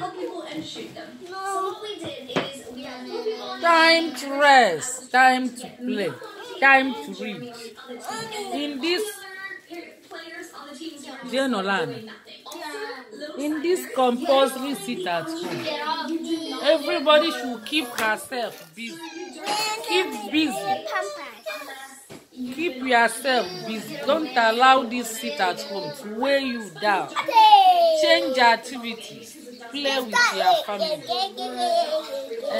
other people and shoot them. No. So what we did is we had time to rest, time to play, time to read. In this Jenolan, in this compulsory sit at home, everybody should keep herself busy. Keep busy. Keep yourself busy. Don't allow this sit at home to weigh you down. Change activities. play with your family.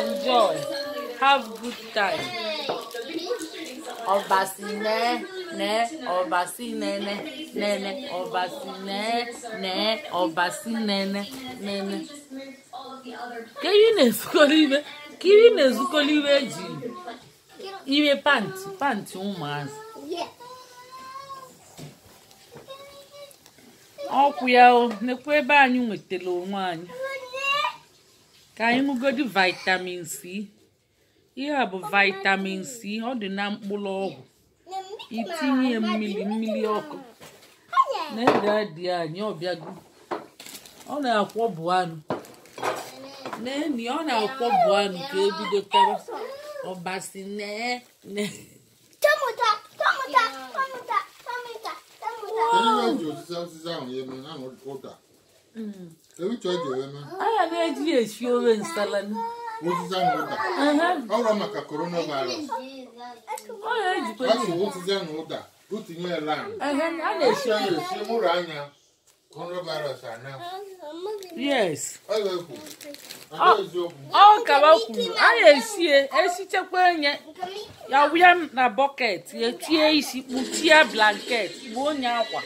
Enjoy. Have good time. Obasine, ne, obasine, ne, ne, ị na-ezukọrọ ibe, ka ị na-ezukọrọ ibe eji ime pantị, pantị ụmụazị. ọkwụ ya o nekwa ebe anyị nwetara onwe anyị ka anyị ṅụgodi vitamin c ihe a bụ vitamin c ọ dị na mkpụrụ ọgwụ itinye mmiri mmiri ọkụ na ede adị anyị ọbịago ọ na-akwọbụ anụ neni ọ na-akwọbụ anụ ka ebido tara ọbasi nee nee anya na-eji esi ofe nsala maka ọ na-ejikwa ọ na ya anya a na-esie esichekwa enye ya wụya na bọket ya tie isi kpuchie blanket gbuo onye akwa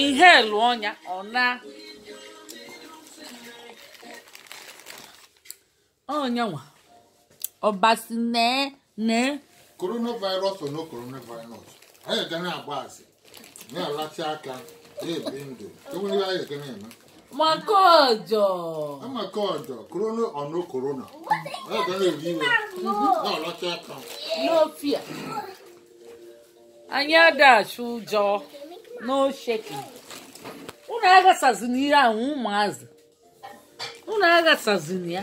inhelu ọnya ọ na onyanwa ọbasi nee nee. coronavirus or no coronavirus anyị ga na-agba asị na-alachi aka na-ebi ndụ enwere anyị ga na-eme maka ọjọ maka ọjọ korona or no korona anyị ga na-ebi iwe na-alachi aka n'ofia anyị adachi ụjọ n'osheki unu aghasazina ihe ahụ ụmụazị unu aghasazina ya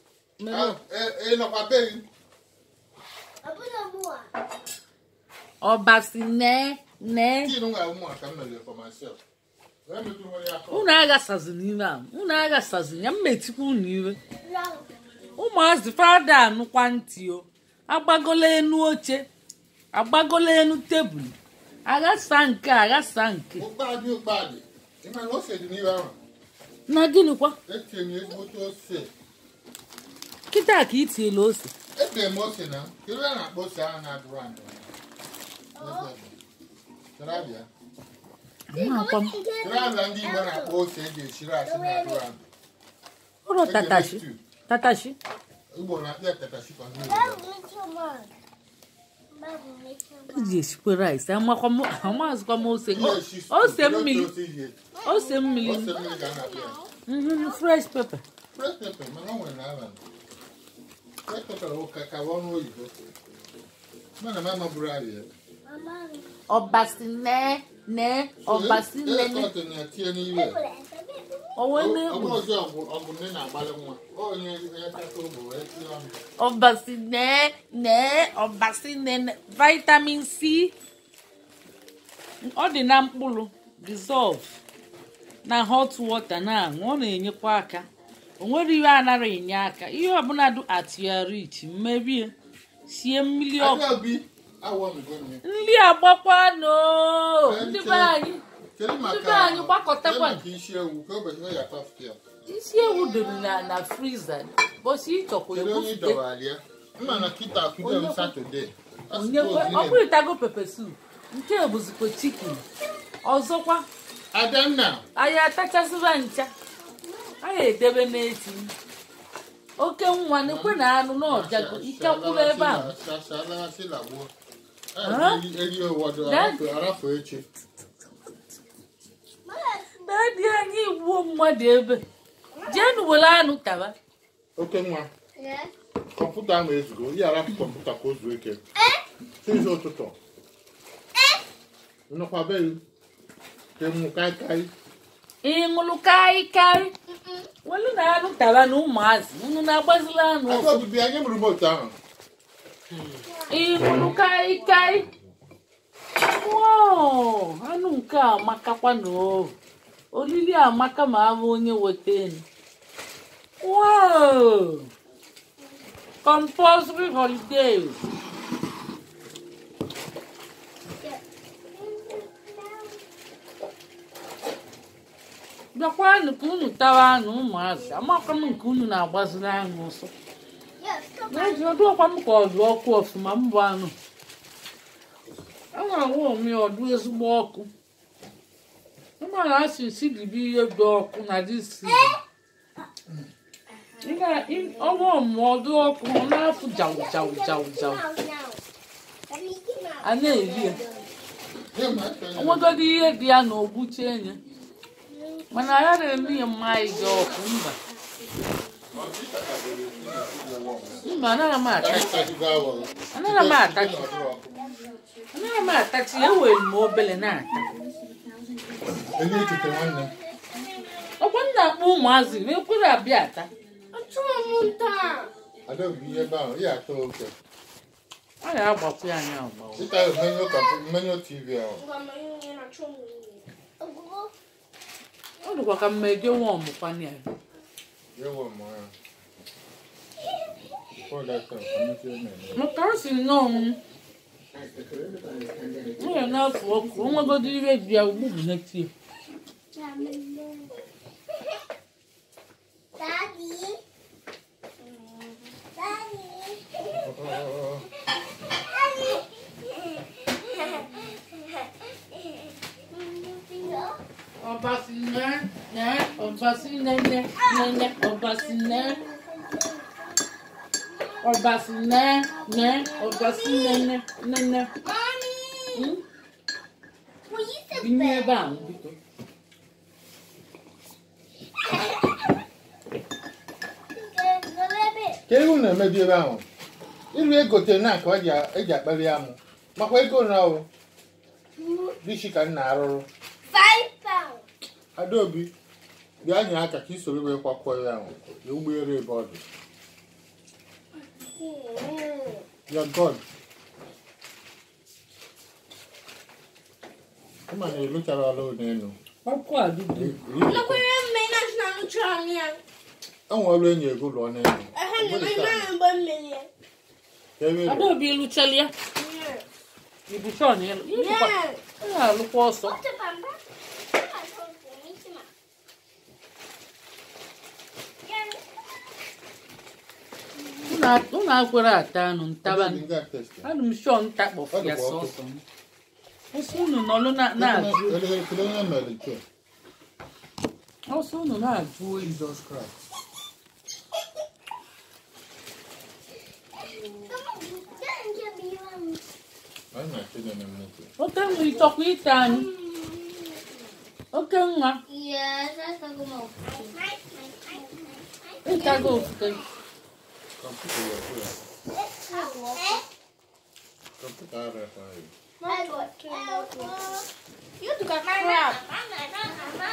ọbasi nee nee unu aghasazi n'ime a unu aghasazi ya mmetikwa unu iwe ụmụazị fada anụkwa ntị o agbagola enu oche agbagola enu tebụl aghasa nke aghasa nke na gịnịkwa kịta ka ị tiela ose ebere m ose na iru a na-akpọ ose ahụ na-adụrụ adụ Trabịa ndị Igbo na-akpọ ose eji esiri asị na-adụrụ adụ ụlọ tatashi tatashi Igbo na-akpọ ya tatashi ka iji m ose ose mmiri ose mmiri fresh pepper fresh pepper mana o nwere na abalị ọbasi ọbasi ọbasi ọbasi nne vitamin c ọ dị na mkpụrụ dissolve na hot water na-aṅụ ọ na-enyekwa aka o ihe iwe anara enye aka ihe ọbụla dị atiarit mmebie sie mmiri ọkụ nri agbakwanụ ndị be anyị ndị anyị gbakọtakwa isi ewu doro na na friza bọsi ịchọkwa ebufute ọbụrịtago pepe sup nke bụzikwa chikin ọzọkwa anyị atachasịba ncha anyị edebe n'eti oke nwa n'ekwe na anụ n'ọjago ike kwụrụ ebe a dadi anyị gbuo mmadụ ebe jenu were anụ taba oke nwa kọmputa ahụ ezugo ya arapụ kọmputa ka o zuo ike tizi ụtụtụ nnọkwa be ka ịmụ kaikai ịṅụlụ karị karị welu na anụ tara na ụmụazị unu na-agbazila anụ ịṅụlụ karị karị anụ nke a amakakwa na olili amaka ma abụ onye weta enu compulsory holiday bịakwanụ ka unu tawa anụ ụmụazị amakwa m nke unu na-agbaziri anyị ụsọ n'eziọdụọkwa m ka ọ dụ ọkụ ọfụma mbụ anụ enwere nwa ome ọdụ ezigbo ọkụ ụmụala asị si dibe ihe dị ọkụ na disi eh? ọnwa omume ọdụ ọkụ ọ na-afụ jawụ jawụ jawụ jawụ a na-eri ya enwegodi ihe dị ya na ogbuche enye Mana yale ni mai jo kumba. Mba anara ma ataki. Anara ma ataki. Anara ma ataki ya we mo bele na ataki. Ele tete wanna. Okwanda mu mazi me kura biata. Atuma munta. Ada bi e ba ya to oke. Aya agbapu anya agbawo. Sita menyo ka menyo TV ahụ. Ngwa menyo na chomu ọ dịkwa ka mma eje nwa ọmụkwa ya maka ọ si nnọọ nwere n'afọ ọkụ onwegodi ibe ji ya ugbu bụ n'etie Daddy. Obassinã, né? Obassinã, né? Né, Obassinã. Obassinã, né? Obassinã, né? Né, né? Mami! Vinho é bom, Vitor. ka ewu na-emebiebe ahụ iru egote na ka eji akpali amụ makwa ego na o hmm? dịchi ka nna arụrụ adaobi bịa nye aka ka i soro wee kwakwọ ya ahụ na ụgbọelu e ebe ọ dị ya god ma na ịlụchara ọla n'elu enwe e ọrụ enyi ego lụọ n'elu adaobi lụchala ya ibuchọ na ịlụ alụkwa ọsọ unu agwara ata nụ ntaba anụ m shọ ntakpọ ya sọsọ ọsọ unu nọlụ na-ajụ ọsọ unu na-ajụ não oke nwa ịchọkwa ịta anyị oke nwa ịtago ofufe Computer. Computer. You took a crap.